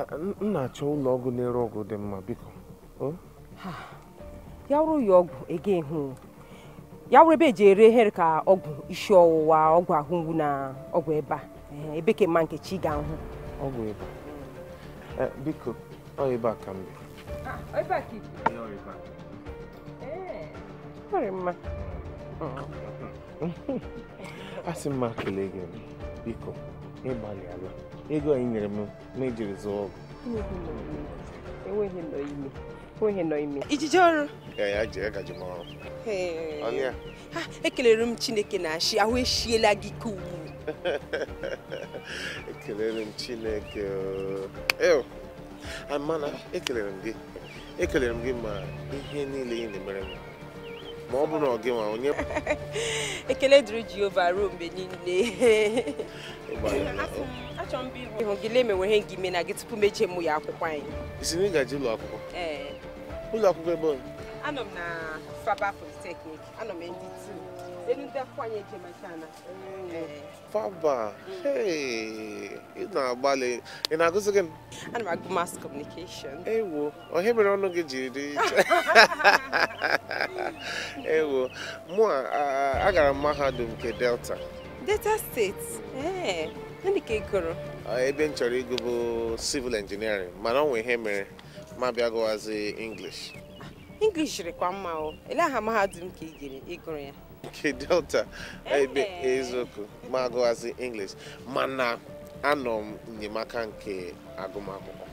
m na-achọ ụlọ ọgwụ na-ere ọgwụ dị mma biko ya wụrụ ya ọgwụ ege hụ ya wụrụ ebe eji ere here ka ọgwụ isi ọwụwa ọgwụ ahụ mgbu na ọgwụ ebe a ebe ka mma nke chi ga-ahụ ọgwụ ebe biko ọ ebe ah, a ka mbe asị m ma kelee gị biko ịgbalị ego anyị nyere m ma zụọ ọgwụ enweghị nọ ime ọrụ ha ekelere m chineke na achị ahụ echiela gị ka ugbu ekelere m chineke amana ekelere m gị ekelere m gị ma ihe niile ị na-emere m ma ọ bụrụ na ọ gị nwa onye ekele dịrị Jehova ruo mgbe niile achọrọ m ịhụ gị lee mewe ihe gị ime na gị tupu mechie mụ ya akwụkwọ anyị isi na ị gaje ụlọ akwụkwọ ụlọ akwụkwọ ebe anọ m na Faba Polytechnic anọ m ndị tii Baba, eh, hey, ị na-agbalị, ị na-agụzi gị? Ana m agụ mass communication. Ewo, onye mere ọnụ gị jiri dị iche. Ewo, mụ a gara m mahadum nke Delta. Delta Steeti, Ee, eh, ndị ka ị gụrụ? Ah, ebe m chọrọ ịgụ bụ civil engineering, mana ọ nwe ihe mere ma bịa gụwazi English. Ah, English kwa mma o, ele aha mahadum ka ị gụrụ ya? nke delta ebe eziokwu ma agụwazi english mana anọ m enyemaka nke agụmakwụkwọ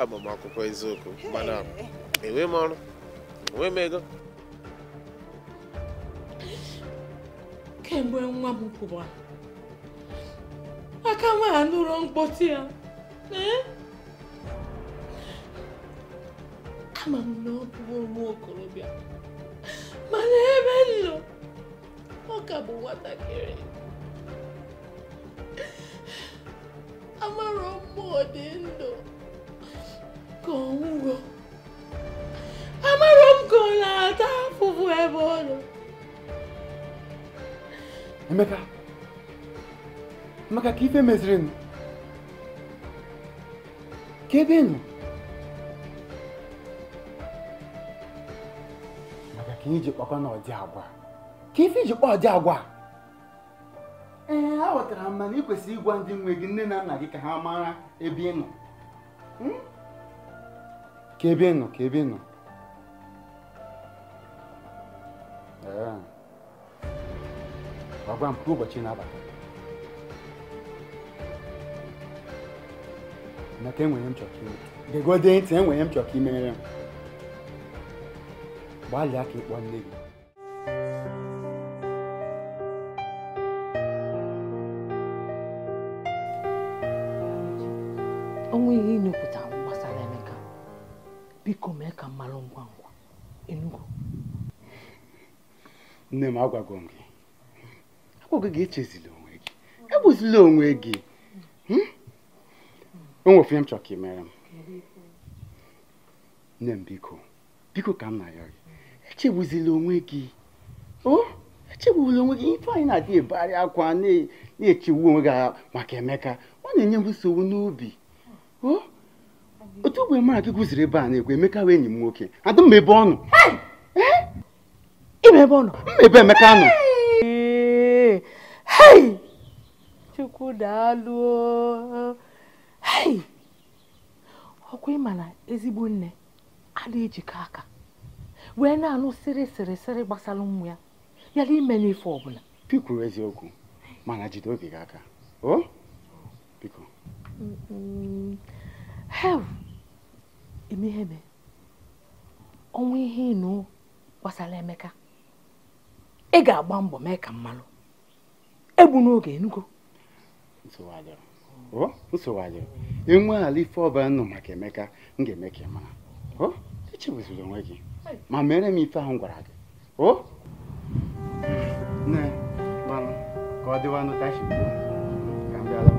agbamakwụkwọ ah, eziokwu mana enwe m ọrụ enwe m ego kemgbe nwa m kwụwa aka nwa ha nụrụ mkpọtụ ya ee ama m na ọ bụ nwa okorobịa mana ebe m ọ ka bụ nwatakịrị amarọ mmụọ dị ndụ ka ọ amarọ m ka ọ na-ata afụfụ ebe ọ nọ Emeka maka ka ife meziri m ka ebe nụ ka iji kpakọ na ọdị agwa ka ife iji kpọ ọdị agwa ee aghọtara m mana ị kwesịrị ịgwa ndị nwe gị nne na nna gị ka ha mara ebe ị nọ hmm? ka ebe ị nọ ka ebe ị Ee, gwagwa m ụbọchị na-abalị maka enwere m chọrọ ka ime gegode ntị enwere m chọrọ ka imere m gbalịa ka ịkpọ nne gị onwe ihe ịnupụta gbasara Emeka biko mee ka mmalụ ngwa ngwa Enugu nne m agwago m gị agwago gị echezila onwe gị egbuzila onwe gị hmm? o nwe m chọrọ ka ị mere m nne m biko biko ka m na-ayọ gị echegbuzila onwe gị o onwe gị ife anyị na-adị ebegharị akwa na-echegbu onwe gị maka emeka ọ na-enye m nsogbu n'obi otu ogbe mara gị gụziri ebe a na ekwu emeka wee enyi m nwoke adị mma ebe ọ nọ eh? ebe ọ nọ mma ebe emeka nọ chukwu daalụ ọkwa ịma na ezigbo nne adịghị ejikọ aka wee na-anụ sịrị sịrị sịrị gbasara ụmụ ya yala ime ife ọbụla pikwuru eziokwu mana jide obi gị aka o biko hev eme ọnwa ihe ịnụ gbasara emeka ị ga-agba mbọ mee ka mmalụ egbu n'oge enugo nsogbu enwe ala ife ọbara nọ maka emeka m ga-eme ka ị mara echebuziri onwe gị ma mere m ife ahụ gwara gị o nne gbanụ ka ọ dịwanụ tashi ka m bịala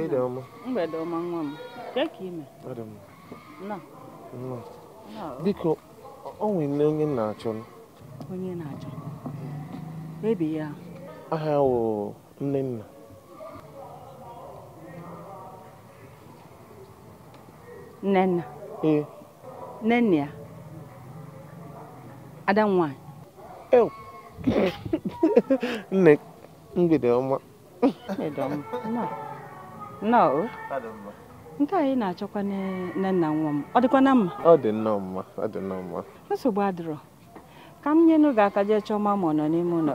mgbede ọma mgbede ọma nwa m ka ime biko o nwere onye nna achọ onye na-achọ ebi ya aha wụ nne nna Nnenna. nna ee nne ya ada nwanyị nne mgbede mgbede ọma nnọọ nke anyị na-achọkwa nne nna nwa m ọ dịkwa na mma ọ dị nnọọ mma ọ dị nnọọ mma nsogbu adịrọ ka m nyenụ gị aka jee chọọ ma ma ọ nọ n'ime ụlọ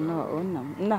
nnọọ nna m nna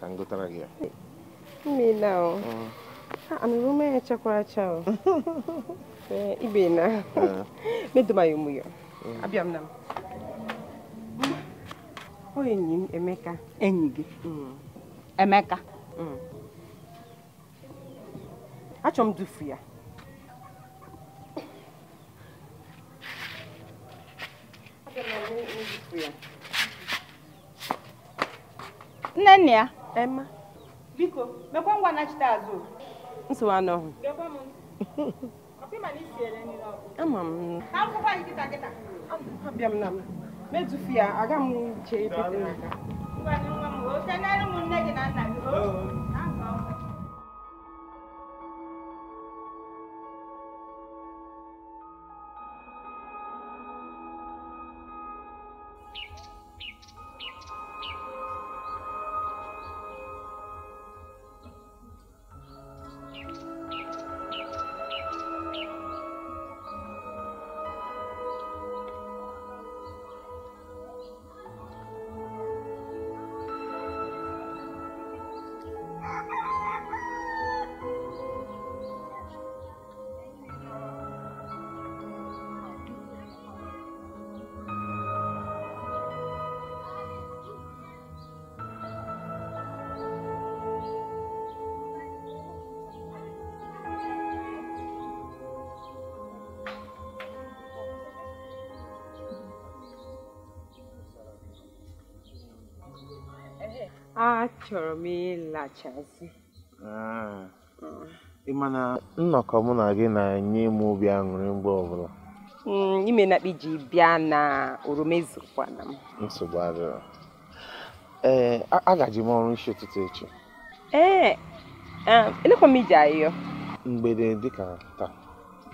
ka m gotara gị mmiri ana rume echekwara cha ibe na medomaghị ụmụ ya abịa m na m enyi m Emeka enyi gị Emeka achọ m dufu ya nne nne ya Emma. Biko, mekwa ngwa nachite azụ. Nsogbu anọ. Gekwa m ntị. Ọkụ ịma na isi ere nri n'ọkụ. Ama m. Ka akwụkwọ anyị kịta kịta. Abịa m na m. Metufu ya, aga m che epete n'aka. Ngwa nwa m, o kenere ụmụnne gị na nna gị. Thank you. achọrọ m ịlachazi ah. hmm. ịma na nnọkọ mụ na gị na-enye m obi aṅụrị mgbe ọbụla hmm, ime na iji bịa na oroma ezukwana m nsogbu adịrọ ee eh, agaji m ọrụ isi ụtụtụ echi ee eh, eh, elekwa m ije ahịa mgbede dịka taa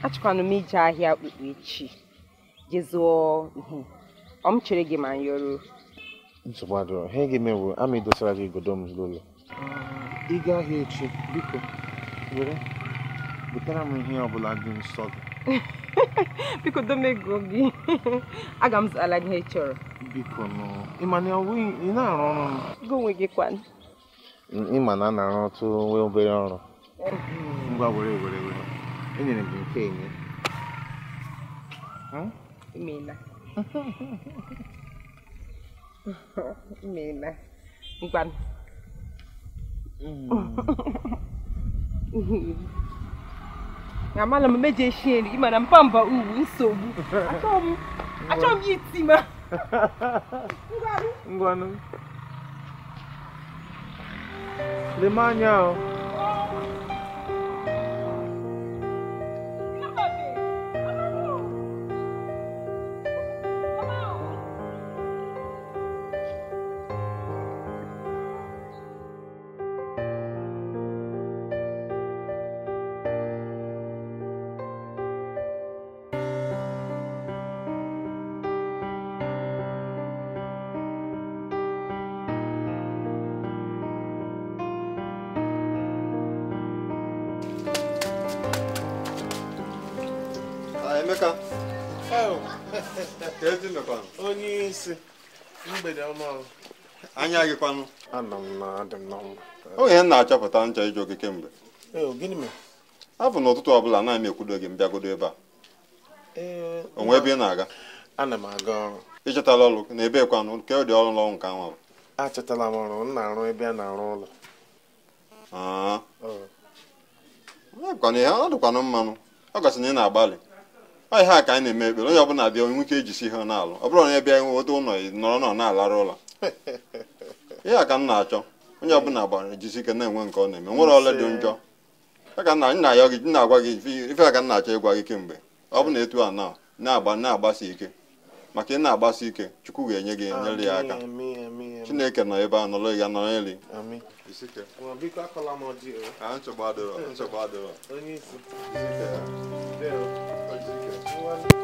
achọkwanụ m ije ahịa okpukpe echi jezụọ ọ m chere gị ma nyoro. nsogbu adịrọ ha ga-eme bụ ama idosara gị igodo m zụrụ ụlọ ị gaa ahịa echi biko were butere m ihe ọbụla dị nsọ gị biko domego gị aga m zụtara gị ihe ị chọrọ biko nụ ịma na ị na-arụ ọrụ m gị onwe gị kwan ịma na a na-arụ ọtụ nwee obere ọrụ ngwa were were were enyere m gị nke enye emeela Mina, bukan. Mm. na mala m mejọ eshie nri mana mpamba uwu nsogbu achọrọ m ya iti ma ngwanụ lema anya ahụ nsị mgbede ọma anya gị kwanụ ana m na m na achọpụta ncha ịjụ gị kemgbe afọ n'ụtụtụ ọbụla m ekwudo gị mbịagodo ebe a onwe ebe ị na-aga Ị chọtala ọrụ na ebe kwanụ nke dị ọrụ n'ọnwụ nke anwa achọtala m ọrụ m na ọ dịkwanụ mmanụ ọ gasị na ị na-agbalị ọ ihe a ka anyị na-eme ekpere onye ọbụla bịa nwoke ejisi ihe n'alụ ọ bụrụ na bịa nwe nweta ụlọ nọrọ nọ na-alara ụlọ ihe a ka m na-achọ onye ọbụla gbara ejisi ike na-enwe nke ọ na-eme nwere ọla dị njọ na-agwa gị ife a ka m na-achọ ịgwa gị kemgbe ọ bụ na etu a na na-agba na-agbasi ike maka ị na-agbasi ike chukwu ga-enye gị enyere ya aka chineke nọ ebe a nọrọ ya nọrọ everyone.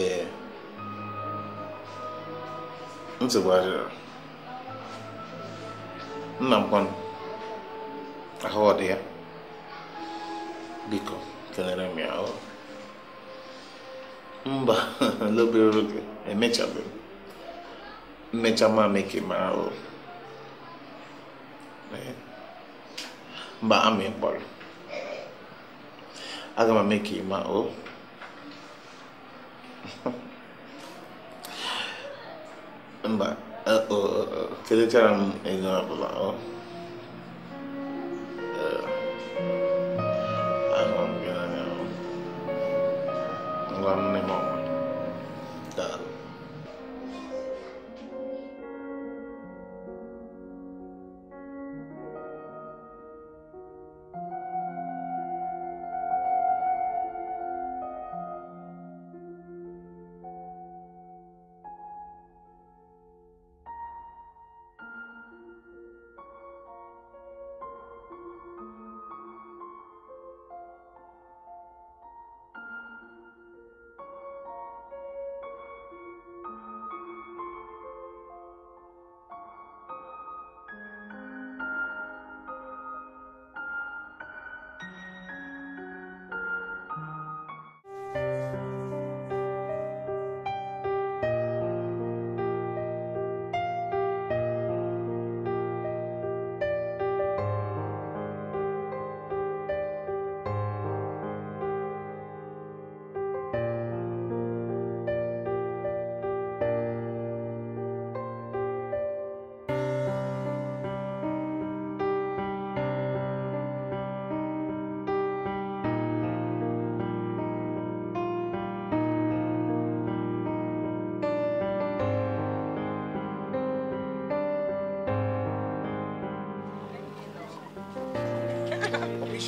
ee nsogbu adịrọ nna m kwanụ ahụ ọ dị ya biko kelere m ya mba n'obere oge emechabeghị mmecha ma mee ka ị mba amị mkpọrọ aga m eme ka ị ma mba felitere m ego ọbụla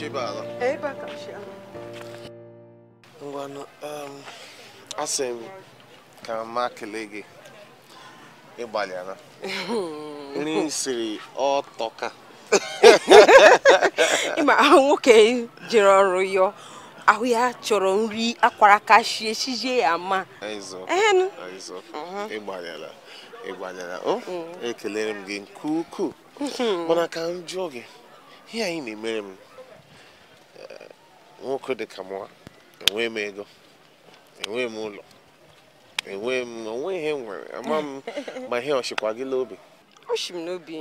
Chibala. Eba Kachibala. Ngwanụ, asị m ka m kelee gị ịgbalịara. Nri o siri ọtọka. Ịma nwoke jere ọrụ yọọ ahụ ya chọrọ nri akwara kachie chijie ya ma. Ịzụ ịgbalịara ịgbalịara o ekelere m gị nke ukwuu mm-hmm. mana ka m jụọ gị ihe anyị na-emere m nwoke dị ka mụwa enwee m ego enwee m ụlọ enwee m onwe ihe nwere ama m ma ihe ọchịkwa gị n'obi oshi m n'obi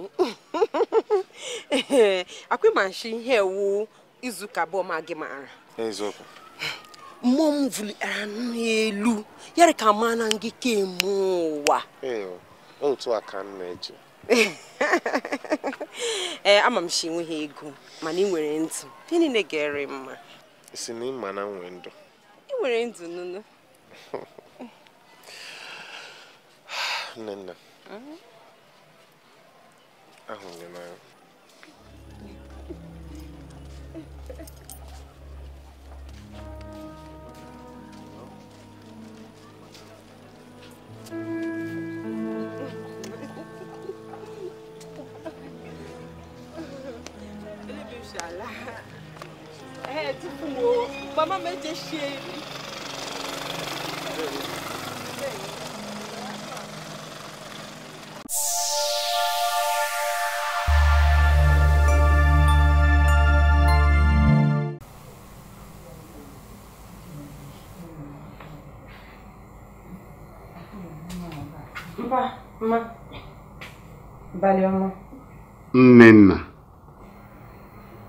akwịmashi ihe ewu izuụka abụọ ma gị maara eziokwu mmụọ m vuligara n'elu yara ka ma na ngị kemụ ụwa otu a ka m na-eji ee ama m shi enweghị ego mana ị nwere ntị ndị niile ga mma si na ịma na nwe ndụ ị nwere ndụ nụnụ nne nna mhm. ahụrụ n'anya Vamos mexer ele. Mpa, valeu Abalị ọma. Nnenna.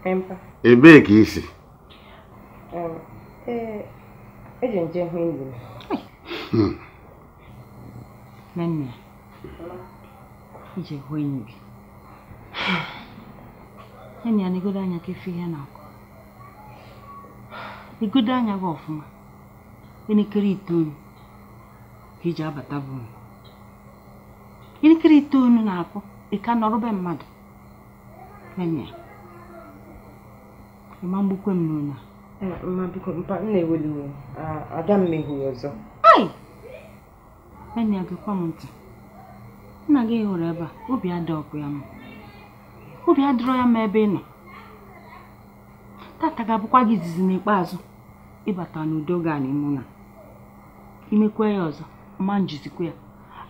Mpa. Ebee Ee, eh, eji m jee hụ ije hmm. gị. anya ka efe ihe na-akụ. Igodo anya gị ọfụma, elekere itoolu ka iji abata bụ Elekere itoolu na-akụ, ịka ka be mmadụ. Nne, ịma mgbukwe m n'ụlọ a. mma biko mpa m na-eweli aga uh, ada m meghuru ọzọ enyi agakwa m ntị nna gị hụrụ ebe a obi adọkụ ya ma obi adịrọ ya m ebe ị nọ tata ga-abụkwa gị izizi n'ikpeazụ ịbata n'udo ga mụ na imekwe ya ọzọ ma njizikwa ya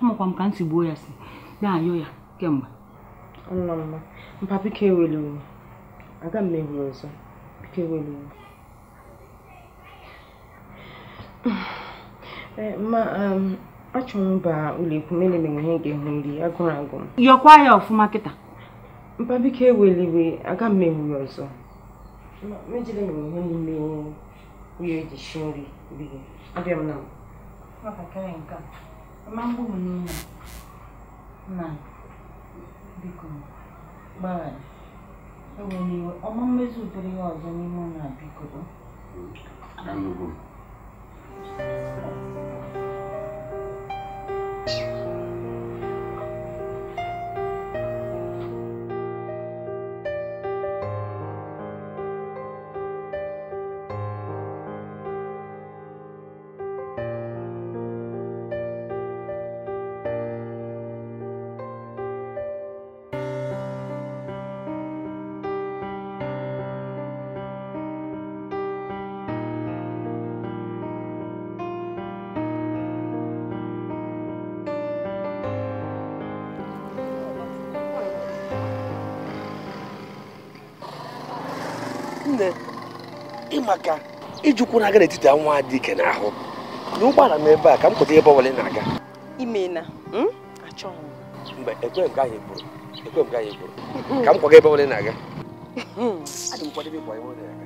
amakwa m ka m si gbuo ya si na-ayọ ya kemgbe mpa biko eweli aga m meghuru ọzọ biko eweli Eh, ma um, achọ m ba ụlọekwu mere mere ihe ga-ehu nri agụrụ agụ yọkwa ya ọfụma kịta mpa biko eweliwe aga m ewu ya ọzọ mejere m ihe n'ime ihe eji si nri biri abịa m na na biko gbaghara eweliwe ọma mmezi ụdịrị ya ọzọ n'ime ụlọ biko 嗯。nne ịmaka ijukwu na-aga n'etiti nwa dị ike n'ahụ na ụgbọala m ebe a ka m pụta ebe ọbụla na-aga imena hmm? achọghị mgbe ekwe nke ahụ egburu ekwe nke ahụ egburu ka m kwaga ebe ọbụla na m kwadebe ebe ọ na-aga hmm,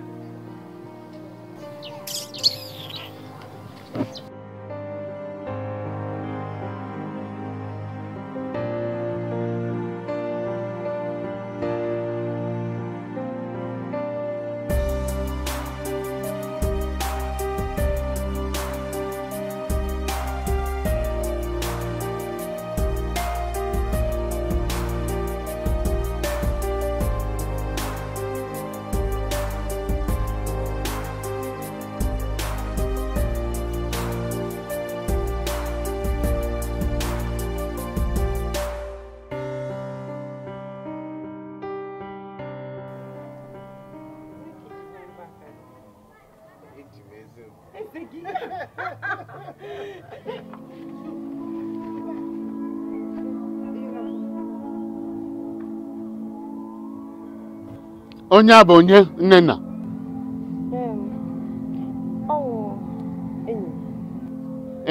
onye a bụ onye nnenna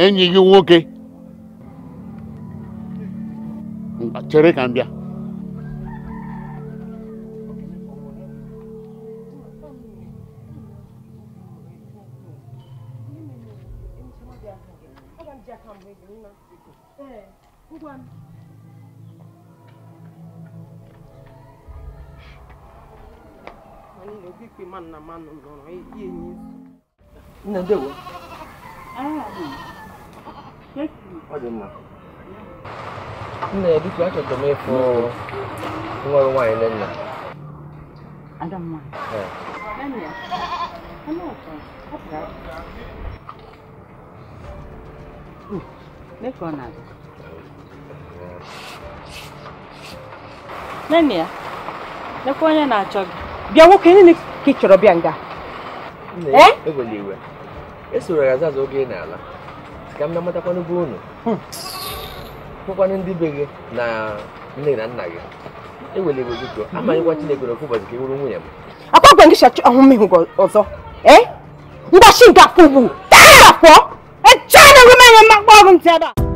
enyi gị nwoke chere ka m bịa Thank you. Não vi que mano na mano não não Nè đi quá trời tụi mày phô ngoài lên nè Anh mà Nè ờ. Nè con nào Nè nè Nè con nhà nào cho bịa nwoke niile ka ị chọrọ bịa nga nna eh? e ya azaza oge n'ala ka m na ụnụ hmm. ndị be gị na nne na nna gị ewele iwe gị tụọ amanyịkwa Chineke n'ofu ụbọchị ka ị nwunye m akwa gwa ngịcha ọzọ eh? ngwachi nke ugbu taa afọ echaa na ọrụ ntị ada